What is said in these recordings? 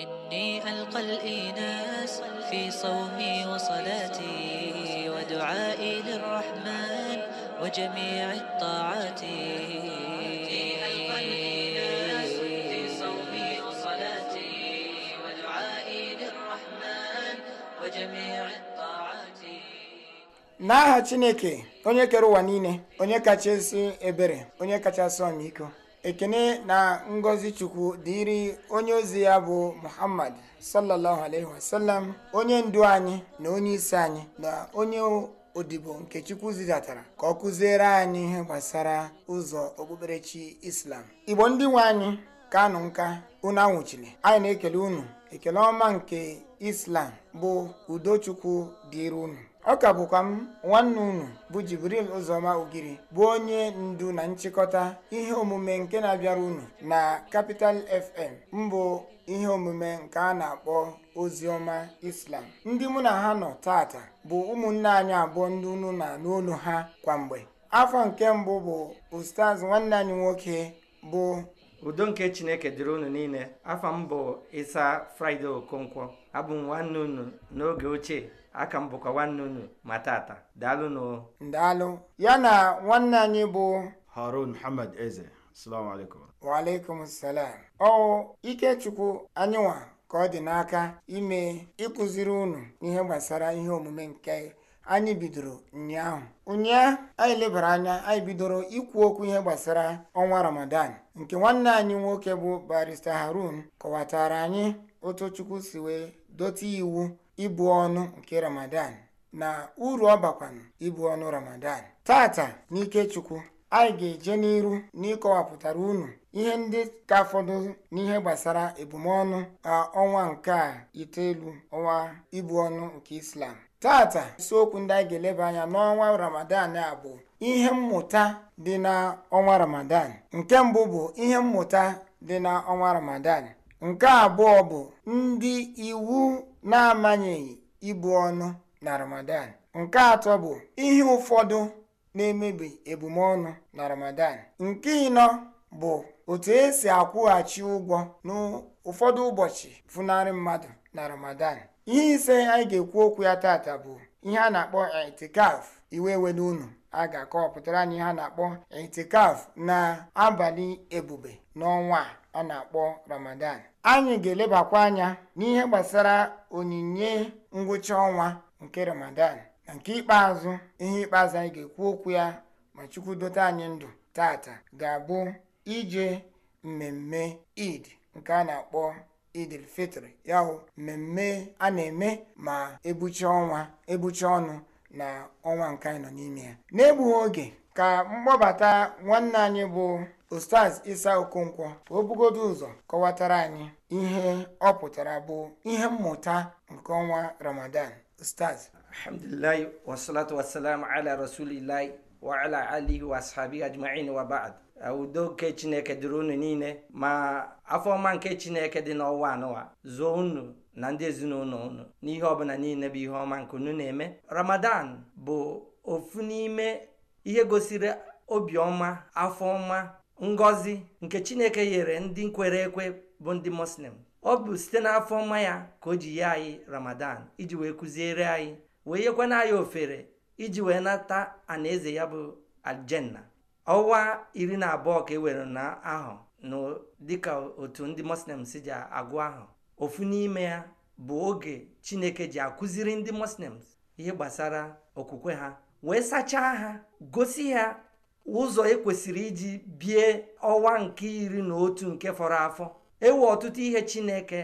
إني ألقى الإناس في صومي وصلاتي ودعائي للرحمن وجميع الطاعات n'aha chineke onye kere ụwa niile onye kachasị ebere onye kachasị ọmịiko ekene na ngọzi chukwu dịrị onye ozi ya bụ muhammad sallallahu alaihi wasallam onye ndu anyị na onye isi anyị na onye odibo nke chukwu zidatara ka ọ kụziere anyị ihe gbasara ụzọ okpukperechi islam igbo ndị nwe anyị ka nụ nka unu anwụchiri anyị na-ekele unu ekele ọma nke islam bụ udochukwu dịrị unu ọ ka bụkwa m nwanne unu bụ Jibril Ụzọma Ogiri bụ onye ndu na nchịkọta ihe omume nke na-abịara unu na kapital FM mbụ ihe omume nke a na-akpọ oziọma Islam ndị mụ na ha nọ tata bụ ụmụnne anyị abụọ ndị unu na n'olu ha kwamgbe afọ nke mbụ bụ Ustaz nwanne anyị nwoke bụ udo nke Chineke dịrị unu niile afọ mbụ bụ Isa Fraịde Okonkwo abụ m nwanne unu n'oge ochie aka m bụkwa nwanne unu ma tata daalụnụ daalụ ya na nwanne anyị bụ harun muhammad eze waalaikum salam ikechukwu anyịnwa ka ọ dị n'aka ime ịkụziri unu ihe gbasara ihe omume nke anyị bidoro ụnyaahụ ụnyaahụ anyị lebara anya anyị bidoro ikwu okwu ihe gbasara ọnwa ramadan nke nwanne anyị nwoke bụ barista harun kọwatara anyị otu chukwu si wee dọta iwu ibu ọnụ nke ramadan na uru ọ bakwanụ ibu ọnụ ramadan tata n'ike chukwu anyị ga-eje n'iru n'ịkọwapụtara unu ihe ndị ka fọdụ n'ihe gbasara ebumọnụ ọnwa nke a itoolu ọnwa ibu ọnụ nke islam tata isiokwu ndị anyị ga-eleba anya n'ọnwa ramadan a bụ ihe mmụta dị na ọnwa ramadan nke mbụ bụ ihe mmụta dị na ọnwa ramadan nke abụọ bụ ndị iwu na-amanyeghị ibu ọnụ na ramadan nke atọ bụ ihe ụfọdụ na-emebi ebumọnụ na ramadan nke ịnọ bụ otu esi akwụghachi ụgwọ n'ụfọdụ ụbọchị funarị mmadụ na ramadan ihe ise anyị ga-ekwu okwu ya tata bụ ihe a na-akpọ caf iwe were unu a ga-akọpụtara anyị ihe a na-akpọ itikaf na abalị ebube n'ọnwa a a na-akpọ ramadan anyị ga-elebakwa anya n'ihe gbasara onyinye ngwụcha ọnwa nke ramadan na nke ikpeazụ ihe ikpeazụ anyị ga-ekwu okwu ya ma chukwu dote anyị ndụ tata ga-abụ ije mmemme id nke a na-akpọ idil fitri ya mmemme a na-eme ma ebucha ọnwa ebucha ọnụ na ọnwa nke anyị nọ n'ime ya n'egbughị oge ka mkpọbata nwanne anyị bụ ostaz Isa Okonkwo ka o bugodo ụzọ kọwatara anyị ihe ọ pụtara bụ ihe mmụta nke ọnwa Ramadan Ustaz alhamdulilahi wasalatu wasalam ala rasulilahi wa ala alihi wa ajma'in wa udo nke chineke dịrị unu niile ma afọ ọma nke chineke dị n'ọnwa anụwa zuo unu na ndị ezinụlọ unu n'ihe ọbụla niile bụ ihe ọma nke unu na-eme ramadan bụ ofu n'ime ihe gosiri obiọma afọ ọma ngozi nke chineke nyere ndị nkwere ekwe bụ ndị muslim ọ bụ site n'afọ ọma ya ka o ji ye anyị ramadan iji wee kụziere anyị wee yekwana anyị ofere iji wee nata anaeze ya bụ aljanna ọnwa iri na abụọ ka e were na ahụ dị dịka otu ndị muslim si ji agụ ahụ ofu n'ime ya bụ oge chineke ji akụziri ndị muslims ihe gbasara okwukwe ha wee sachaa ha gosi ha ụzọ ekwesịrị iji bie ọwa nke iri na otu nke fọrọ afọ ewu ọtụtụ ihe Chineke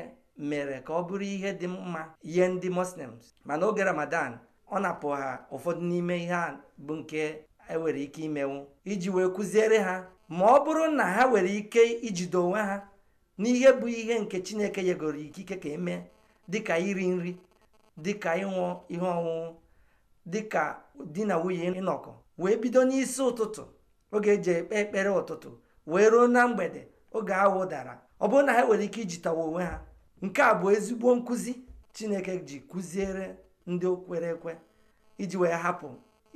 mere ka ọ bụrụ ihe dị mma nye ndị Muslims mana oge Ramadan ọ na-apụ ha ụfọdụ n'ime ihe a bụ nke enwere ike imenwu iji wee kụziere ha ma ọ bụrụ na ha nwere ike ijide onwe ha n'ihe bụ ihe nke Chineke yegoro ikike ka emee dịka iri nri dịka ịṅụ ihe ọṅụṅụ dịka di na nwunye ịnọkọ wee bido n'isi ụtụtụ oge eji ekpe ekpere ụtụtụ wee ruo na mgbede oge awụ dara ọ bụrụ na ha nwere ike ijitawa onwe ha nke a bụ ezigbo nkụzi chineke ji kụziere ndị kwere ekwe iji wee hapụ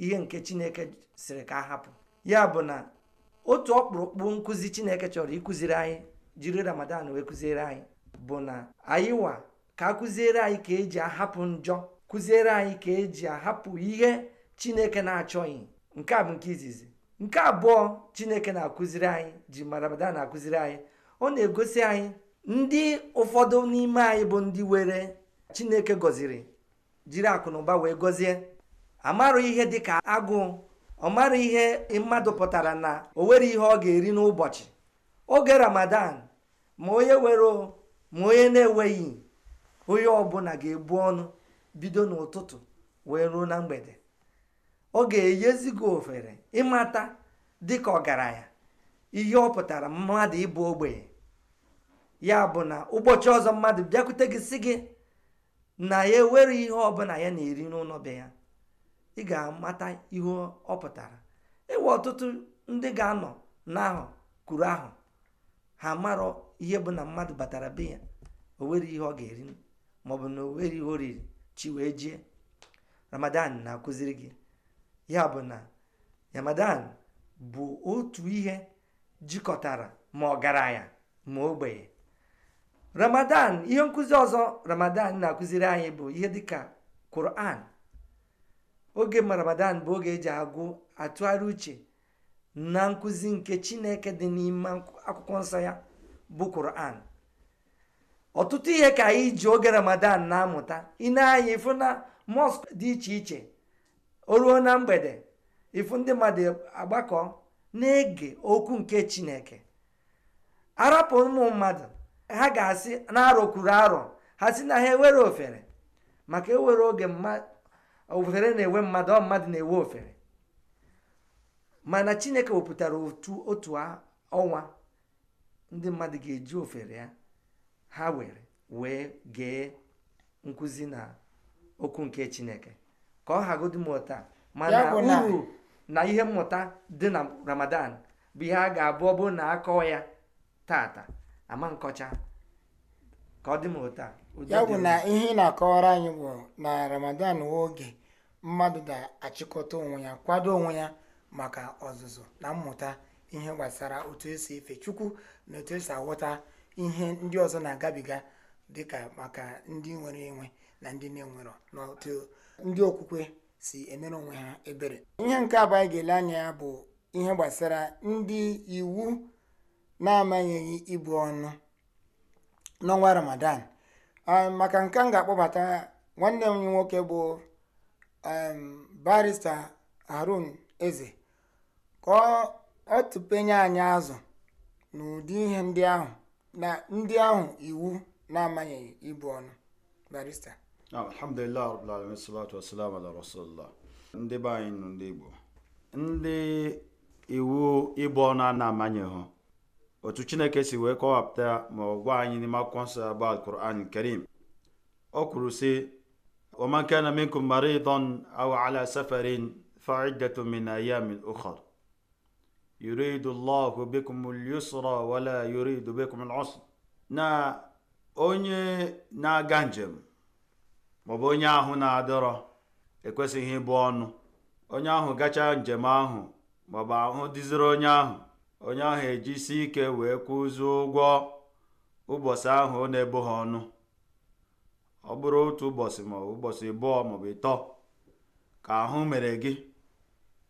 ihe nke chineke siri ka hapụ ya bụ na otu ọkpụrụkpụ nkụzi chineke chọrọ ịkụziri anyị jiri ramadan wee kụziere anyị bụ na anyịwa ka a kụziere anyị ka eji ahapụ njọ kụziere anyị ka eji ahapụ ihe chineke na-achọghị nke a bụ nke izizi nke abụọ chineke na-akụziri anyị ji marabada na-akụziri anyị ọ na-egosi anyị ndị ụfọdụ n'ime anyị bụ ndị were chineke gọziri jiri akụnụba wee gọzie amarụ ihe dịka agụ ọ mara ihe mmadụ pụtara na o nwere ihe ọ ga-eri n'ụbọchị oge ramadan ma onye were ma onye na-enweghị onye ọbụla ga-ebu ọnụ bido n'ụtụtụ wee ruo na mgbede ọ ga-enyezi gị ofere ịmata dịka ọgaranya ihe ọ pụtara mmadụ ịbụ ogbenye ya bụ na ụbọchị ọzọ mmadụ bịakwute gị si gị na ya ewere ihe ọbụla ya na-eri n'ụlọ be ya ị ga-amata ihe ọ pụtara ịwa e ọtụtụ ndị ga-anọ n'ahụ kwuru ahụ ha marọ ihe bụ na mmadụ batara be ya o nwere ihe ọ ga-eri maọbụ na o nwere ihe o riri chi wee jie ramadan na-akụziri gị ya bụ na Ramadan bụ otu ihe jikọtara ma ọ gara ọgaranya ma ogbenye Ramadan ihe nkụzi ọzọ Ramadan na-akụziri anyị bụ ihe dịka Quran oge ma Ramadan bụ oge eji agụ atụgharị uche na nkụzi nke Chineke dị n'ime akwụkwọ nsọ ya bụ Quran ọtụtụ ihe ka anyị ji oge Ramadan na-amụta ị na-anya ịfụ mosque dị iche iche o ruo na mgbede ifu ndị mmadụ agbakọ na-ege okwu nke chineke arapụ ụmụ mmadụ ha ga-asị na arọ arọ ha si na ha ewere ofere maka ewere oge ofere na-ewe mmadụ ọ mmadụ na-ewe ofere mana chineke wepụtara otu otu ọnwa ndị mmadụ ga-eji ofere ya ha were wee gee nkụzi na okwu nke chineke ka ọ hagodi mmụta mana uru na ihe mmụta dị na ramadan bụ ihe a ga-abụ ọ bụrụ na akọọ ya tata ama nkọcha ka ọ dị ụta. ya bụ na ihe ị na-akọwara anyị bụ na ramadan nwe oge mmadụ ga-achịkọta onwe ya kwado onwe ya maka ọzụzụ na mmụta ihe gbasara otu esi efe chukwu na otu esi aghọta ihe ndị ọzọ na-agabiga dịka maka ndị nwere enwe na ndị na-enwerọ n'otu ndị okwukwe si emere onwe ha ebere ihe nke abụọ anyị ga-ele anya ya bụ ihe gbasara ndị iwu na-amanyeghị ibu ọnụ n'ọnwa ramadan ah, maka nke m ga-akpọbata nwanne m nwoke bụ barista harun eze ka ọ tụpenye anyị azụ n'ụdị ihe ndị ahụ na ndị ahụ iwu na-amanyeghị ibu ọnụ barista Naam, alhamdulillah rabbil alamin salatu wassalamu ala rasulillah. Ndị be anyị ndị Igbo ndị iwu ịbụ ọnụ a na-amanyeghụ otu Chineke si wee kọwapụta ma ọ gwa anyị n'ime akwụkwọ nsọ bụ Al-Qur'an Karim O kwuru si waman kana minkum maridan aw ala safarin fa iddatu min ayamin yuridu wala yuridu bikum na onye na-aga njem maọbụ onye ahụ na-adọrọ ekwesịghị ịbụ ọnụ onye ahụ gachaa njem ahụ maọbụ ahụ dịziri onye ahụ onye ahụ ejisi ike wee kwụzie ụgwọ ụbọchị ahụ ọ na-ebo ha ọnụ ọ bụrụ otu ụbọchị ma ụbọchị ịbụọ maọbụ ịtọ ka ahụ mere gị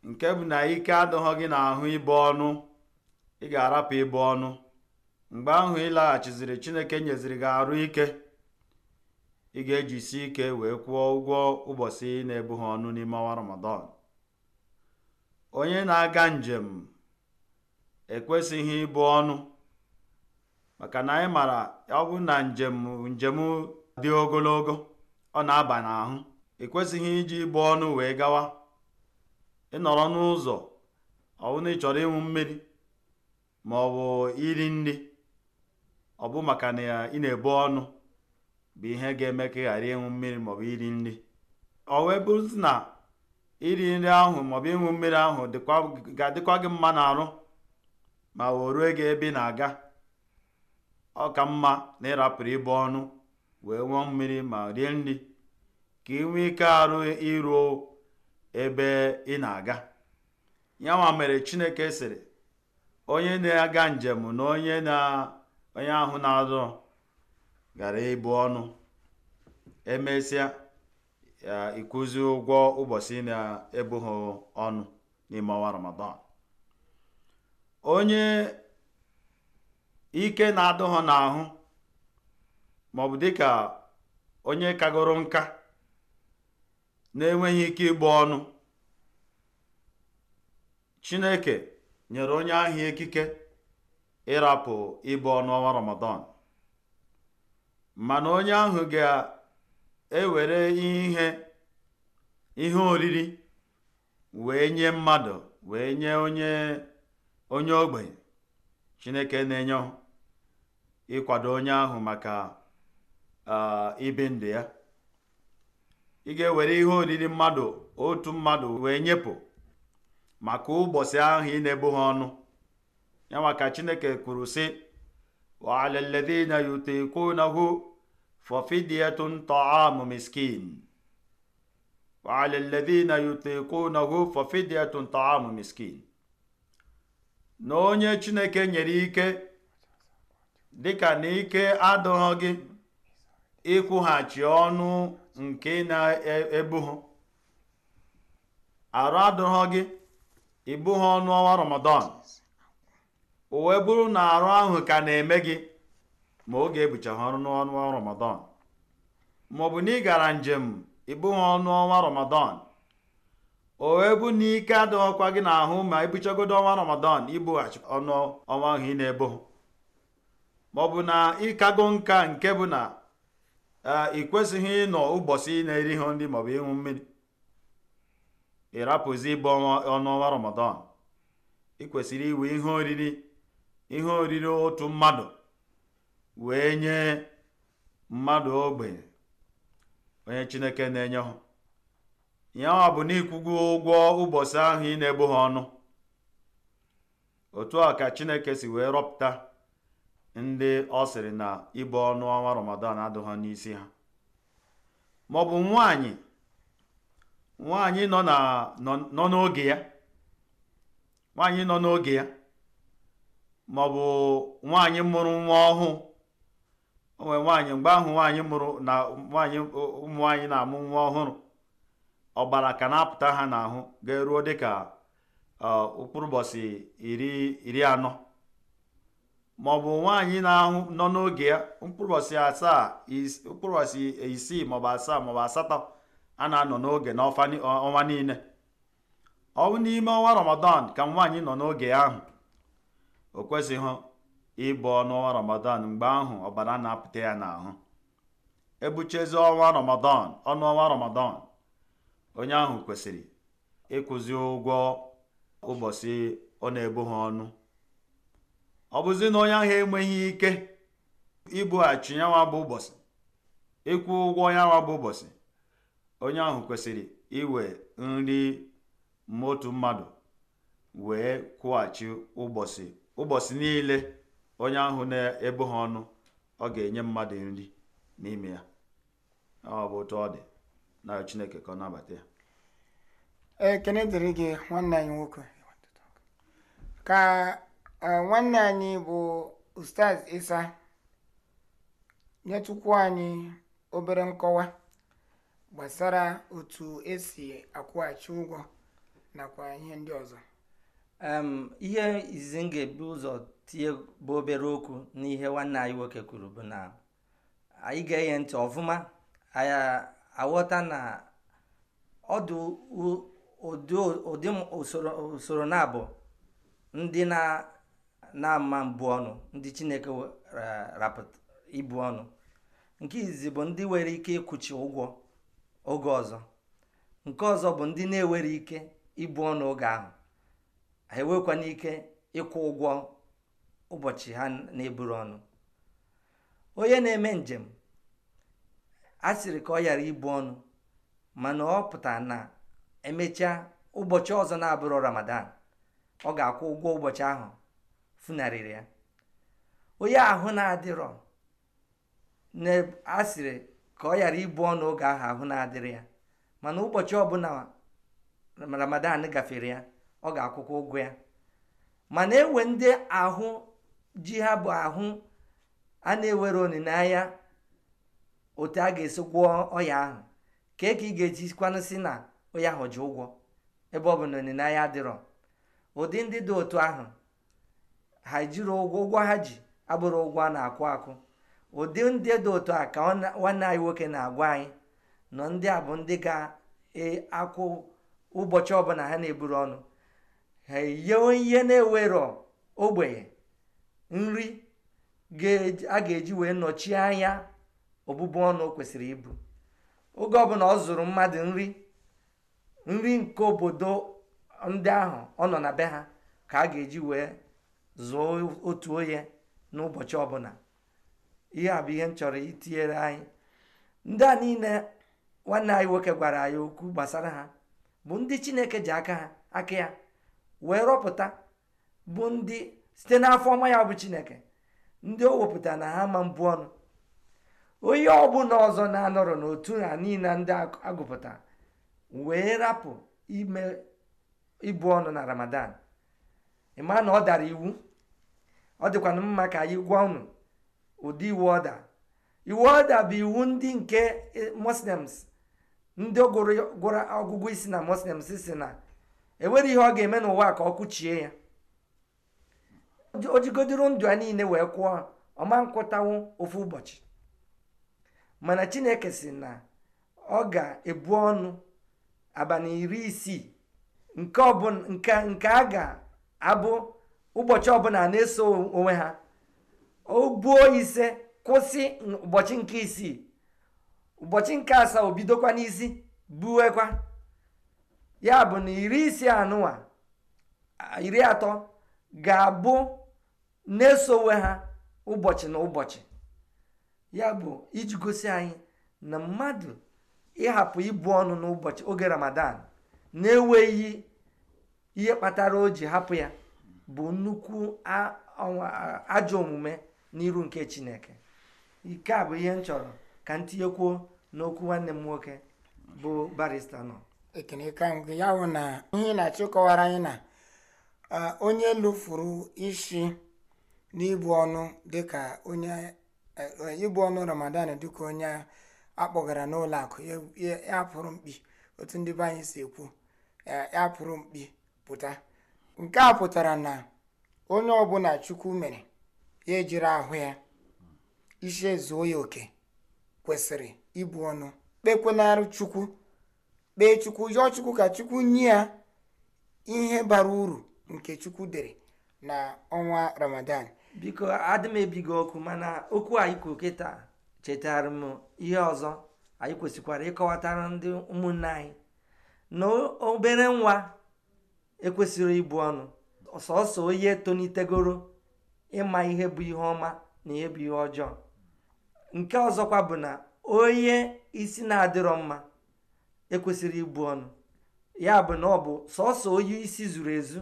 nke bụ na ike adịghị gị n'ahụ ịbụ ọnụ ị ga-arapụ ịbụ ọnụ mgbe ahụ ịlaghachiziri Chineke nyeziri gị arụ ike ị ga-ejisi ike wee kwụọ ụgwọ ụbọchị na-ebu ọnụ n'ime ọnwa Ramadan onye na-aga njem ekwesịghị ịbụ ọnụ maka na anyị mara ọgwụ na njem njem dị ogologo ọ na-aba n'ahụ ekwesịghị iji ịbụ ọnụ wee gawa ịnọrọ n'ụzọ ọ ịchọrọ ịnwụ ị chọrọ mmiri ma ọ bụ iri nri ọ bụ maka na ị na-ebu ọnụ bụ ihe ga-eme ka ị ghara ịṅụ mmiri maọbụ iri nri ọ wee bụrụzi na iri nri ahụ maọbụ ịnwụ mmiri ahụ ga-adịkwa gị mma n'arụ ma wee rue gị ebe ị na-aga ọ ka mma na ịrapụrụ ibe ọnụ wee nwụọ mmiri ma rie nri ka ị nwee ike arụ iruo ebe ị na-aga ya nwa mere chineke sịrị onye na-aga njem na onye na onye ahụ na azụ gara ịbụ ọnụ emesịa ịkwụzi ụgwọ ụbọchị na-ebughị ọnụ n'ime ọnwa ramadan onye ike na-adụghọ n'ahụ maọbụ dịka onye kagoro nka na-enweghị ike ịgba ọnụ chineke nyere onye ahụ ikike ịrapụ ịbụ ọnụ ọnwa ramadan mana onye ahụ ga-ewere ihe ihe oriri wee nye mmadụ wee nye onye onye ogbenye chineke na-enye ịkwado onye ahụ maka ibi ndụ ya ị ga-ewere ihe oriri mmadụ otu mmadụ wee nyepụ maka ụbọchị ahụ ị na-ebu ha ọnụ ya maka chineke kwuru sị wa ala alladhina ففدية طعام مسكين وعلى الذين يطيقونه ففدية طعام مسكين na onye chineke nyere ike dịka na ike adịghị gị ịkwụghachi ọnụ nke na-ebu ha arụ adịghị gị ịbụghị ọnụ ọwa ramadan o wee bụrụ na arụ ahụ ka na-eme gị ma oge ebucha ha ọnụ n'ọnwa ramadan maọbụ na ị gara njem ịbụghị ọnụ ọnwa ramadan o wee bụ na ike adịghịkwa gị n'ahụ ma ebuchagodo ọnwa ramadan ibughachi ọnụ ọnwa ahụ ị na-ebo maọbụ na ịkago nka nke bụ na e, ị kwesịghị ịnọ ụbọchị ị na-eri ihe ndị maọbụ ịṅụ mmiri ịrapụzi ịbụ ọnụ ọnwa ramadan ị kwesịrị iwe ihe oriri ihe oriri otu mmadụ wee nye mmadụ ogbe onye chineke na-enye ha ya ọ bụ n'ikwugo ụgwọ ụbọchị ahụ ị na-ebu ha ọnụ otu a ka chineke si wee rọpụta ndị ọ sịrị na ịbụ ọnụ ọnwa ramadan adụ ha n'isi ha maọbụ nwanyị nwanyị nọ n'oge ya nwanyị nọ n'oge ya maọbụ nwaanyị mụrụ nwa ọhụụ onwe nwaanyị mgbe ahụ nwaanyị mụrụ na nwaanyị ụmụ nwaanyị na-amụ nwa ọhụrụ ọbara ka na-apụta ha n'ahụ ga-eruo dịka ka ụbọchị iri anọ ma ọ bụ nwaanyị na-ahụ nọ n'oge ya mkpụrụ asaa isii maọbụ asaa maọbụ asatọ a na-anọ n'oge n'ọnwa niile ọ bụ n'ime ọnwa ramadan ka nwaanyị nọ n'oge ahụ o kwesịghị ịbọ n'ọnwa ramadan mgbe ahụ ọbara na-apụta ya n'ahụ ebuchezi ọnwa ramadan ọnụ ramadan onye ahụ kwesịrị ịkụzi ụgwọ ụbọchị ọ na ebughị ọnụ ọ bụzi na onye ahụ enweghị ike ibughachi yanwa bụ ụbọchị ịkwụ ụgwọ yanwa bụ ụbọchị onye ahụ kwesịrị iwe nri motu mmadụ wee kwụghachi ụbọchị ụbọchị niile onye ahụ na ebu ha ọnụ ọ ga-enye mmadụ nri n'ime ya ọ bụ otu ọ dị na chineke ka ọ nabata ya ekene dịrị gị nwanne anyị nwoke ka e, nwanne anyị bụ ustaz isa nyetụkwu anyị obere nkọwa gbasara otu esi akwụghachi ụgwọ nakwa ihe ndị ọzọ ihe izizi m ga-ebu ụzọ tinye bụ obere okwu n'ihe nwanne anyị nwoke kwuru bụ na anyị ga-enye ntị ọfụma anyị aghọta na ọdụ ụdị usoro na-abụ ndị na-ama mbụ ọnụ ndị chineke ibu ọnụ nke izizi bụ ndị nwere ike ịkwụchi ụgwọ oge ọzọ nke ọzọ bụ ndị na-ewere ike ibu ọnụ oge ahụ ha enwekwana ike ịkwụ ụgwọ ụbọchị ha na-eburu ọnụ onye na-eme njem a sịrị ka ọ ghara ibu ọnụ mana ọ pụtara na emechaa ụbọchị ọzọ na-abụrụ ramadan ọ ga-akwụ ụgwọ ụbọchị ahụ funarịrị ya onye ahụ na-adịrọ a sịrị ka ọ ghara ibu ọnụ oge ahụ ahụ na-adịrị ya mana ụbọchị ọbụla ramadan gafere ya ọ ga-akwụkwọ ụgwọ ya mana enwe ndị ahụ ji ha bụ ahụ a na-ewere olileanya otu a ga-esi gwọọ ọya ahụ kee ka ị ga eji kwanụ si na ọya ahụ ji ụgwọ ebe ọ bụ na olileanya adịrọ ụdị ndị dị otu ahụ ha jiri ụgwọ ụgwọ ha ji abụrụ ụgwọ a na-akwụ akụ ụdị ndị dị otu a ka nwanne anyị nwoke na-agwa anyị nọ ndị a bụ ndị ga-akwụ e, ụbọchị ọbụla ha na-eburu ọnụ ha eyewe ihe na-ewerọ ogbenye nri a ga-eji wee nọchie anya ọbụbụ ọnụ kwesịrị ibu oge ọbụla ọ zụrụ mmadụ nri nri nke obodo ndị ahụ ọ nọ na be ha ka a ga-eji wee zụọ otu onye n'ụbọchị ọbụla ihe a bụ ihe m chọrọ itinyere anyị ndị a niile nwanne anyị nwoke gwara anyị okwu gbasara ha bụ ndị Chineke ji aka ha aka ya wee rọpụta bụ ndị site n'afọ ọma ya bụ chineke ndị o wepụta na ha ma mbụ ọnụ onye ọbụla ọzọ na-anọrọ n'otu ha niile ndị agụpụta wee rapụ ime ịbụ ọnụ na ramadan ịma na ọ dara iwu ọ dịkwana mma ka anyị gwa unu ụdị iwu ọda iwu ọda bụ iwu ndị nke e, muslims ndị gụrụ ọgụgụ isi na muslims si na enwere ihe ọ ga-eme n'ụwa ka ọ kụchie ya ojigodoro ndụ a niile wee kwụọ ọma nkwụtawo ofu ụbọchị mana chineke si na ọ ga-ebu ọnụ abalị iri isii nke a ga-abụ ụbọchị ọbụla na-eso onwe ha o buo ise kwụsị ụbọchị nke isii ụbọchị nke asaa obidokwa bidokwa n'isi buwekwa ya bụ na iri isii anụwa iri atọ ga-abụ na-esowe ha ụbọchị na ụbọchị ya bụ iji gosi anyị na mmadụ ịhapụ ibu ọnụ n'ụbọchị oge ramadan na-enweghị ihe kpatara o ji hapụ ya bụ nnukwu ajọ omume n'iru nke chineke ike a bụ ihe m chọrọ ka m tinyekwuo n'okwu nwanne m nwoke bụ barista nọ ya bụ na ihe na-achịkọwara anyị na onye lụfuru isi n'ibu ọnụ dịka onye eh, ibu ọnụ ramadan dịka onye akpọgara n'ụlọ akụ ya pụrụ mkpi otu ndị be anyị si ekwu eh, ya pụrụ mkpi pụta nke a pụtara na onye ọbụla chukwu mere ya ejiri ahụ ya isi ezuo ya oke kwesịrị ibu ọnụ kpekwenarụ chukwu kpee chukwu yọọ chukwu ka chukwu nye ya ihe bara uru nke chukwu dere na ọnwa ramadan biko adị m ebighị okwu mana okwu anyị kwuru kịta chetara m ihe ọzọ anyị kwesịkwara ịkọwatara ndị ụmụnne anyị na obere nwa ekwesịrị ịbụ ọnụ sọsọ onye tonitegoro ịma ihe bụ ihe ọma na ihe bụ ihe ọjọọ nke ọzọkwa bụ na onye isi na-adịrọ mma ekwesịrị ịbụ ọnụ ya bụ na ọ bụ sọsọ onye isi zuru ezu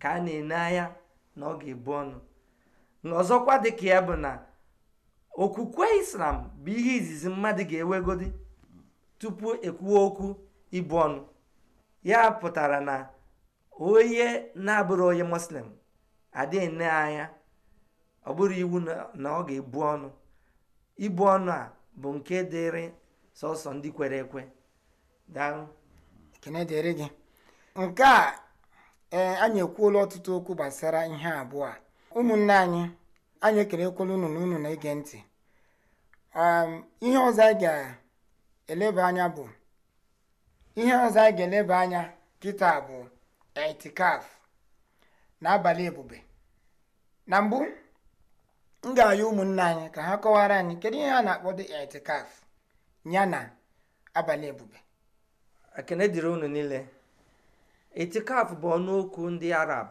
ka a na-ene anya na ọ ga-ebu ọnụ nọzọkwa dịka ya bụ na okwukwe islam bụ ihe izizi mmadụ ga-ewegodi tupu ekwuo okwu ibu ọnụ ya pụtara na onye na-abụrụ onye muslim adịghị nne anya ọ bụrụ iwu na ọ ga-ebu ọnụ ibu ọnụ a bụ nke dịrị sọsọ ndị kwere ekwe dịrị gị nke a e, anyị ekwuola ọtụtụ okwu gbasara ihe abụọ a ụmụnne anyị anyị ekelekwala unu na unu na-ege ntị um, ihe ọzọ anyị ga-eleba anya bụ ihe ọzọ anyị ga-eleba anya kịta bụ etikaf na abalị ebube na mbụ m ga-ayọ ụmụnne anyị ka ha kọwara anyị kedu ihe a na-akpọ dị etikaf ya na abalị ebube ekene dịrị unu niile Etikaf bụ ọnụ okwu ndị arab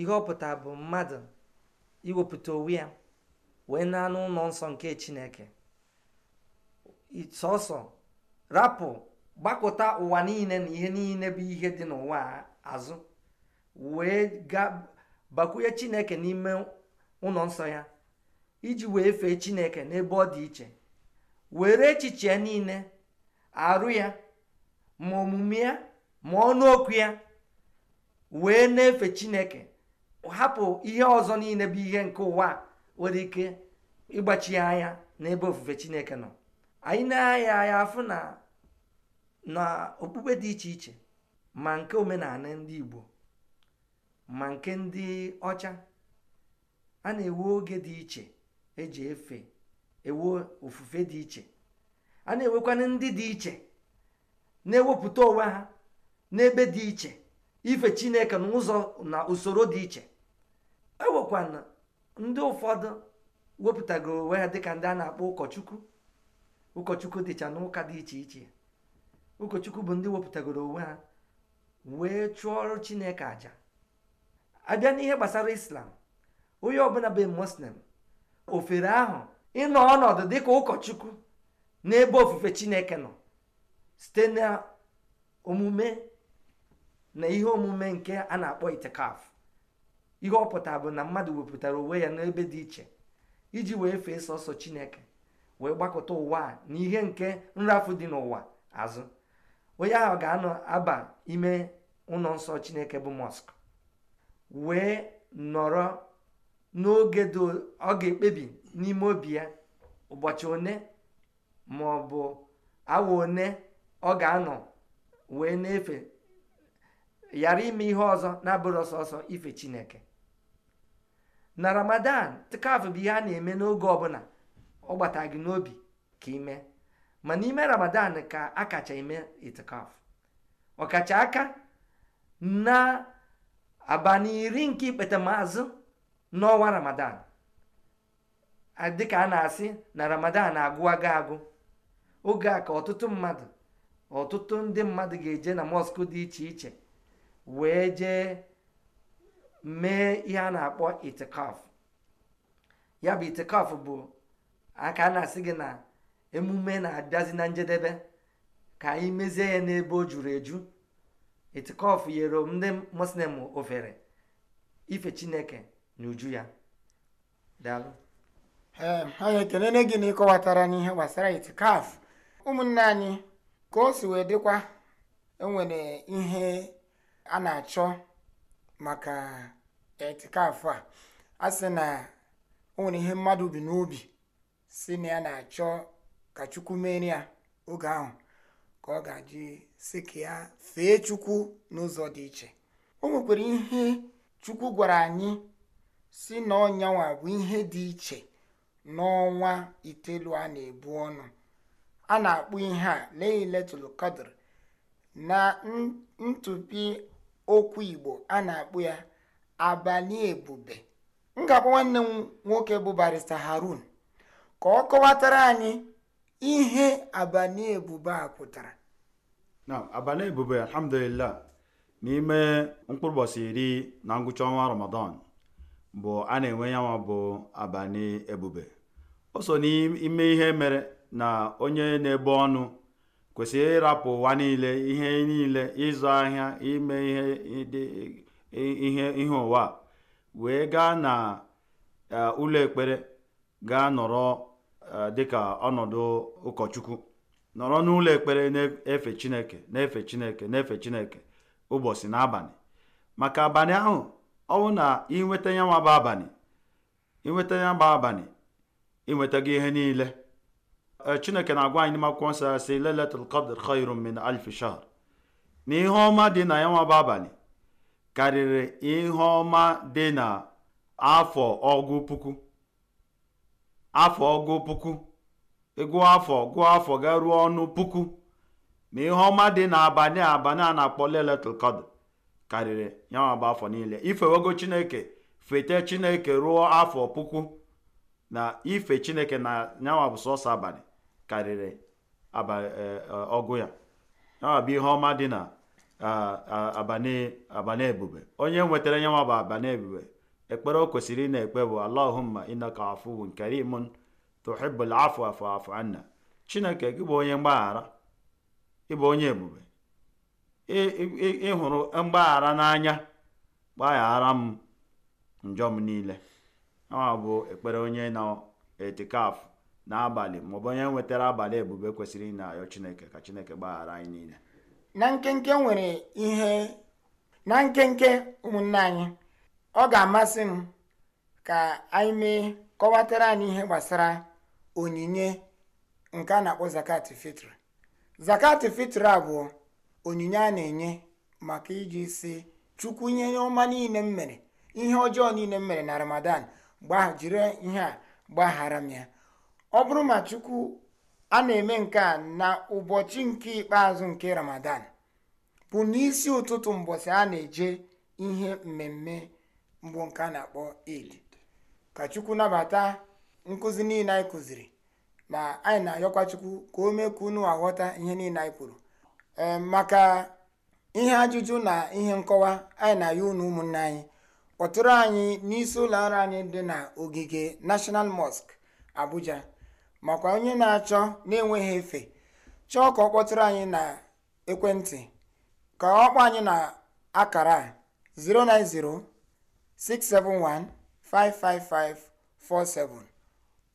ihe ọ pụtara bụ mmadụ iwepụta onwe ya wee na anụ ụlọ nsọ nke chineke sọsọ rapụ gbakọta ụwa niile na ihe niile bụ ihe dị n'ụwa azụ wee gbakwunye chineke n'ime ụlọ nsọ ya iji wee fee chineke n'ebe ọ dị iche were echiche niile arụ ya ma omume ya ma ọnụ okwu ya wee na-efe chineke hapụ ihe ọzọ niile bụ ihe nke ụwa nwere ike ịgbachi anya n'ebe ofufe chineke nọ anyị na-aya anya afụ na na okpukpe dị iche iche ma nke omenala ndị igbo ma nke ndị ọcha a na-ewe oge dị iche eji efe ewe ofufe dị iche a na enwekwa ndị dị iche na-ewepụta onwe ha n'ebe dị iche ife chineke n'ụzọ na usoro dị iche E na ndị ụfọdụ wepụtagoro onwe ha dịka ndị a na-akpọ ụkọchukwu ụkọchukwu dịcha n'ụka dị iche iche ụkọchukwu bụ ndị wepụtagoro onwe ha wee chụọ ọrụ chineke aja abịa n'ihe gbasara islam onye ọbụla bụ muslim ofere ahụ ịnọ ọnọdụ dịka ụkọchukwu n'ebe ofufe chineke nọ site na omume na ihe omume nke a na-akpọ itikaf ihe ọpụta bụ na mmadụ wepụtara onwe ya n'ebe dị iche iji wee fee sọsọ chineke wee gbakọta ụwa a na ihe nke nrafu dị n'ụwa azụ onye ahụ ga-anọ aba ime ụlọ nsọ chineke bụ mọsk wee nọrọ n'oge ọ ga-ekpebi n'ime obi ya ụbọchị one ma ọ bụ awa one ọ ga-anọ wee na-efe ghara ime ihe ọzọ na-abụrụ ọsọsọ ife chineke na ramadan tikafu bụ ihe a na-eme n'oge ọbụla ọ gbata gị n'obi ka ime ma n'ime ramadan ka akacha kacha eme itikafu ọkacha aka na abalị iri nke ikpetamazụ n'ọnwa ramadan dịka a na-asị na ramadan agụwago agụ oge a ka ọtụtụ mmadụ ọtụtụ ndị mmadụ ga-eje na mọsk dị iche iche wee jee mee ihe a na-akpọ itikaf ya bụ itikaf bụ aka a na-asị gị na emume na-abịazi na njedebe ka anyị mezie ya n'ebe o juru eju itikaf nyere ndị muslim ofere ife chineke na uju ya daalụ ehm, anyị ekelele gị na ịkọwatara n'ihe gbasara itikaf ụmụnne anyị ka o si wee dịkwa enwere ihe a na-achọ maka etikafụ a a sị na o nwere ihe mmadụ bi n'obi si na ya na-achọ ka chukwu mere ya oge ahụ ka ọ ga ji si ka ya fee chukwu n'ụzọ dị iche o nwekwara ihe chukwu gwara anyị si na ọnyanwa bụ ihe dị iche n'ọnwa itelu a na-ebu ọnụ a na-akpụ ihe a leiletụlụ kadr na ntụpi okwu Igbo a na-akpụ ya abalị ebube m ga-akpọ nwanne m nwoke bụ barista Harun ka ọ kọwatara anyị ihe abalị ebube a pụtara na abalị ebube alhamdulillah n'ime mkpụrụ ụbọchị iri na ngwụcha ọnwa ramadan bụ a na-enwe yanwa bụ abalị ebube o so n'ime ihe mere na onye na ebe ọnụ kwesị ịrapụ ụwa niile ihe niile ịzụ ahịa ime ihe ihe ụwa wee gaa na e, ụlọ ekpere gaa nọrọ e, dịka ọnọdụ ụkọchukwu nọrọ n'ụlọ ekpere na-efe chineke na-efe chineke na-efe chineke ụbọchị na abalị maka abalị ahụ ọ bụ na inweta ya nwaba abalị inweta ya gba abalị ịnwetago ihe niile chineke na-agwa anyị n'ime akwụkwọ nsọ si lailatul qadr khairun min alf shahr na ihe ọma dị na ya nwa abalị karịrị ihe ọma dị na afọ ọgụ puku afọ ọgụ puku ịgụọ e afọ gụọ afọ ga ruo ọnụ puku ma ihe ọma dị na abalị abalị a na-akpọ lailatul qadr karịrị ya nwa afọ niile ifewego chineke fete chineke ruo afọ puku na ife chineke na nyanwa bụ sọsọ abalị karịrị e, e, ọgụ ya abụ ihe ọma dị na abana ebube onye nwetara nye nwa bụ abanebube ebube ekpere o kwesịrị ị ekpe bụ allahumma innaka afuwun karimun tuhibbul afu afu anna chineke gị bụ onye mgbaghara ịbụ onye ebube ịhụrụ mgbaghara n'anya gbaghara m njọ m niile ọ bụ ekpere onye na etikafụ n'abalị maọbụ onye nwetara abalị ebube kwesịrị ị ayọ chineke ka chineke gbaghara anyị niile na nkenke nwere ihe na nkenke ụmụnne anyị ọ ga-amasị m ka anyị mee kọwatara anyị ihe gbasara onyinye nke a na-akpọ zakat fitr zakat fitr a bụ onyinye a na-enye maka iji si chukwu ihe ọma niile m mere ihe ọjọọ niile m mere na ramadan jiri ihe a gbaghara m ya ọ bụrụ ma chukwu a na-eme nke a na ụbọchị nke ikpeazụ nke ramadan bụ n'isi ụtụtụ mbọsị a na-eje ihe mmemme mbụ nke a na-akpọ eid ka chukwu nabata nkụzi niile anyị kụziri ma anyị na-ayọkwa chukwu ka o mee ka unu aghọta ihe niile anyị kwuru ehm, maka ihe ajụjụ na ihe nkọwa anyị na-ayọ unu ụmụnne anyị kpọtụrụ anyị n'isi ụlọ ọrụ anyị dị na ogige national mosque abuja makwa onye na-achọ na-enweghị efe chọọ ka ọ kpọtụrụ anyị na ekwentị ka ọ anyị na akara 09067155547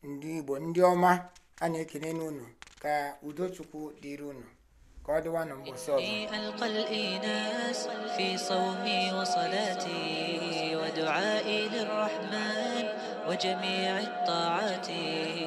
ndị Igbo ndị ọma a na ekene n'unu ka udochukwu dịrị unu ka ọ dịwa n'ụbọchị ọzọ وجميع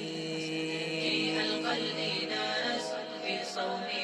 soul